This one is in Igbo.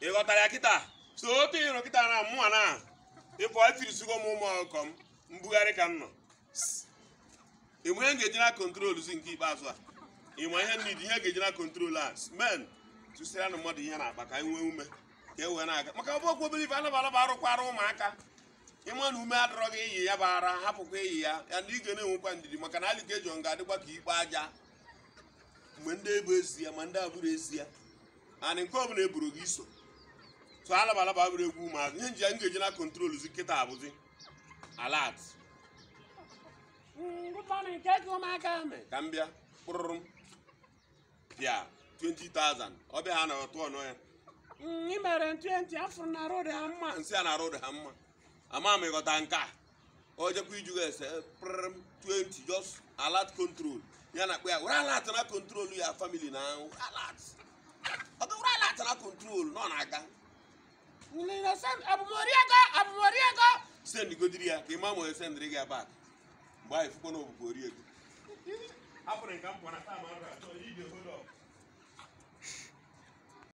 ị ya kịta so otu ịrụ kịta na mụnwa na ịpụ ifirisigo e m ụmụ ọkụkọ m mbugharị ka m nọ enwere ngeji na kontrol zi nke ikpeazụ a ịma ihe nri ihe ga-eji na kontrol a men tụsịrị na mmadụ ihe na-akpa ka nwee ume ka e wee na-aga maka ọbụ okwu obere anaba anaba arụkwara ụmụaka ịma na ume adọrọ gị iyi ya bụ ara hapụkwa iyi ya ya na ige na-enwekwa ndidi maka na alikejon ga-adịkwa ka ikpe aja mgbe ndị ebu ezi ya ma ndị abụrụ ezi ya anị nke ọ eburu gị iso so alaba alaba bụrụ egwu ụmụazụ ihe nji ya m na kọntrol zi kịta abụzi alat ka m bịa kpụrụrụ m pịa 20,000 ọbịa ha na ọtụ ọnọ ya ị mere 20 afụrụ na rod ha mma nsị a na arụ rod ha mma ama m ịghọta nke a ojekwa ijugha ese prm 20 just alat control ya na akpa ya were alat na control ya famili na ahụ alat na control nọ na-aga abụmoriego abụmoriego sendigodiri ya ka ị ma ma onye sendiri gị mgbe anyị na oriego